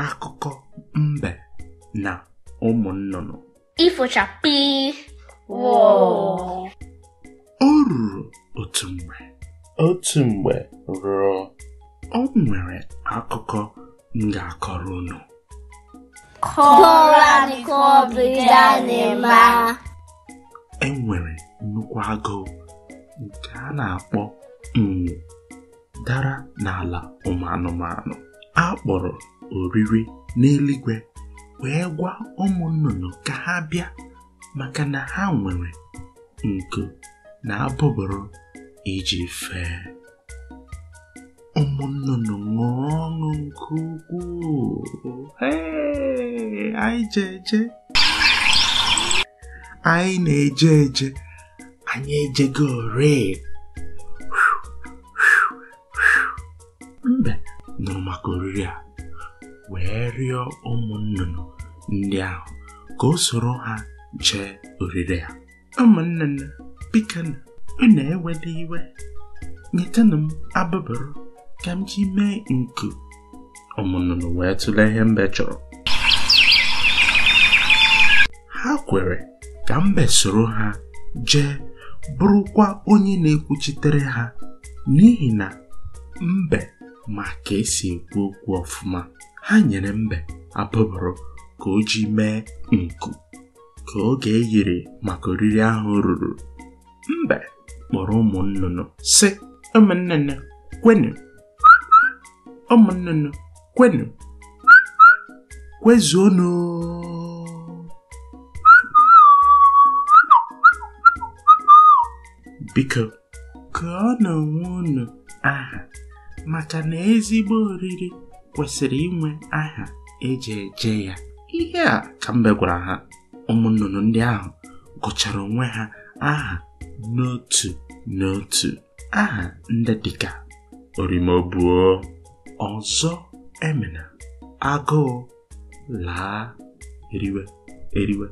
akụkọ mbe na ụmụ nnụnụ ifochapị o ruru otu mgbe otu mgbe rụọ o nwere akụkọ m ga-akọrọ unu e nwere nnukwu agụụ nke a na-akpọ nwu dara n'ala ụmụ anụmanụ A kpọrọ oriri n'eluigwe wee gwa ụmụ nnụnụ ka ha bịa maka na ha nwere nku na abụbụrụ iji fee ụmụ nnụnụ ṅụọ ọṅụ nke ukwuu anyị je anyị na-eje eje anyị ejego ore mbe nụrụ maka oriri a wee rịọ ụmụ nnụnụ ndị ahụ ka o soro ha jee oriri a ụmụnne nne ị unu eweda iwe nyetanụ m abụbụrụ ka m ji mee nku ụmụ nnụnụ wee tụlee ihe mbe chọrọ ha kwere ka mbe soro ha jee bụrụkwa onye na-ekwuchitere ha n'ihi na mbe ma ka esi ekwu okwu ọfụma ha nyere mbe abụbụrụ ka o ji mee nku ka oge eyiri maka oriri ahụ ruru mbe kpọrọ ụmụ nnụnụ sị ụmụnnụnụ kwenu ụmụnnụnụ kwenu kwezuonụ biko ka ọ na onwe unu aha maka na ezigbo oriri kwesịrị inwe aha eji eje ya ihe a ka mbe gwara ha ụmụ ndị ahụ gụchara onwe ha aha n'otu n'otu aha ndị dịka orimobuo ọzọ Emina. agụụ laa eriwe eriwe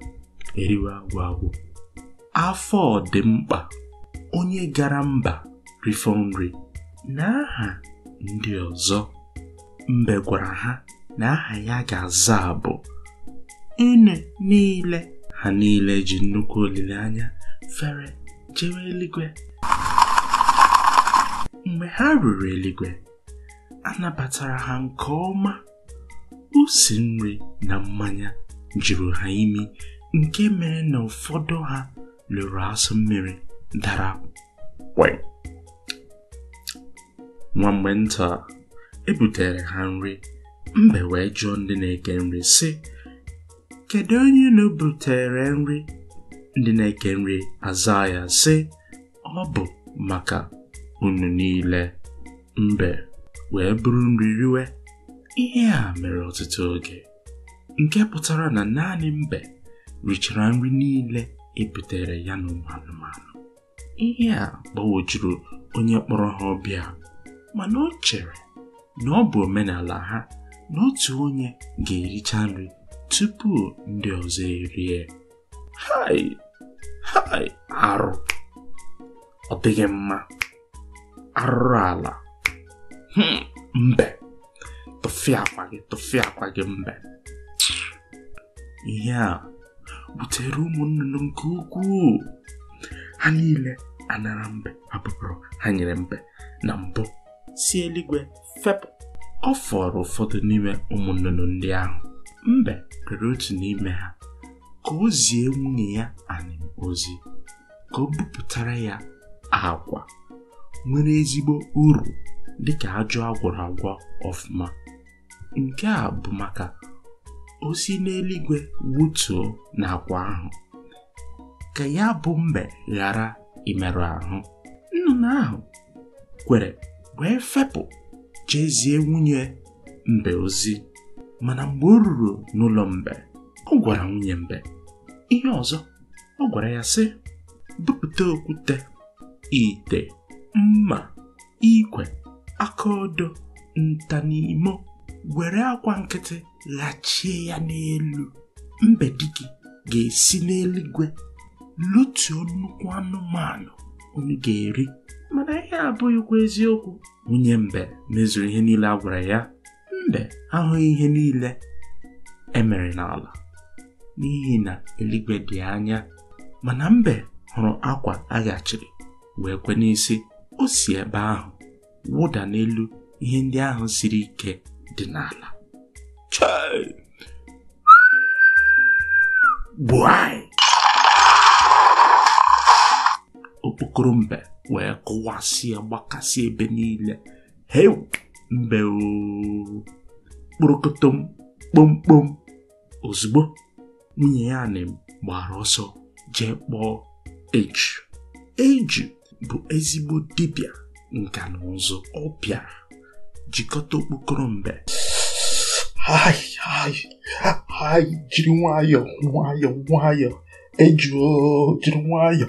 eriwe agwụ agwụ afọ dị mkpa onye gara mba rifọ nri na aha ndị ọzọ mbe gwara ha na aha ya ga-aza bụ unu niile ha niile ji nnukwu olileanya fere jewe eluigwe mgbe ha ruru eluigwe anabatara ha nke ọma usi nri na mmanya juru ha imi nke mere na ụfọdụ ha lụrụ asụ mmiri dara kwe nwa mgbe nta ebutere ha nri mbe wee jụọ ndị na-eke nri sị kedu onye na-ebutere nri ndị na-eke nri aza ya sị ọ bụ maka unu niile mbe wee bụrụ nri riwe ihe a mere ọtụtụ oge nke pụtara na naanị mbe richara nri niile ebutere ya na ụmụ anụmanụ ihe a gbawojuru onye kpọrọ ha ọbịa mana o chere na ọ bụ omenala ha na otu onye ga-ericha nri tupu ndị ọzọ erie hai hai arụ ọ dịghị mma arụrụ ala hmm, mbe tụfi akwa gị tụfịa akwa gị mbe ihe a butere ụmụ nnụnụ nke ukwuu ha niile anara mbe hapụrụ ha nyere mbe na mbụ si eluigwe fepụ ọ fọrọ ụfọdụ n'ime ụmụ ndị ahụ mbe rere otu n'ime ha ka o zie nwunye ya anim ozi ka o bupụtara ya agwa nwere ezigbo uru dị ka ajọ agwọrọ agwọ ọfụma nke a bụ maka osi n'eluigwe wutuo n'agwa ahụ ka ya bụ mbe ghara imerụ ahụ nnụnụ ahụ kwere wee fepụ jezie nwunye mbe ozi mana mgbe o ruru n'ụlọ mbe ọ gwara nwunye mbe ihe ọzọ ọ gwara ya sị bupụta okwute ite mma ikwe akaodo ntanimo were akwa nkịtị ghachie ya n'elu mbe gị ga-esi n'eluigwe lutuo nnukwu anụmanụ onye ga-eri mana ihe abụghịkwa eziokwu nwunye mbe mezuru ihe niile a gwara ya mbe ahụghị ihe niile emere n'ala n'ihi na eluigwe dị anya mana mbe hụrụ akwa aghachiri wee kwe n'isi o si ebe ahụ wụda n'elu ihe ndị ahụ siri ike dị n'ala chai gbuai grumba, we kuwasia wakasie benila. Heu, mbeu. Burukutum, bum bum. ozbo, nwunye ya na m gbara ọsọ jee kpọọ eji. Eji bụ ezigbo dibịa nka na ụzụ ọ bịara jikọta okpokoro mbe. jiri jiri nwayọọ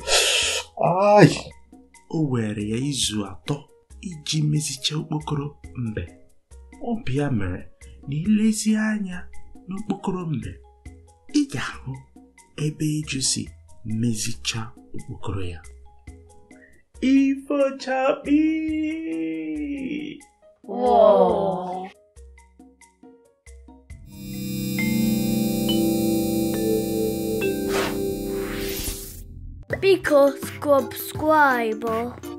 o were ya izu atọ iji mezicha okpokoro mbe ọ bịa mere na ilezi anya n'okpokoro mbe ị ga-ahụ ebe ịjụ si mezicha okpokoro ya ifochakpi Subscribe.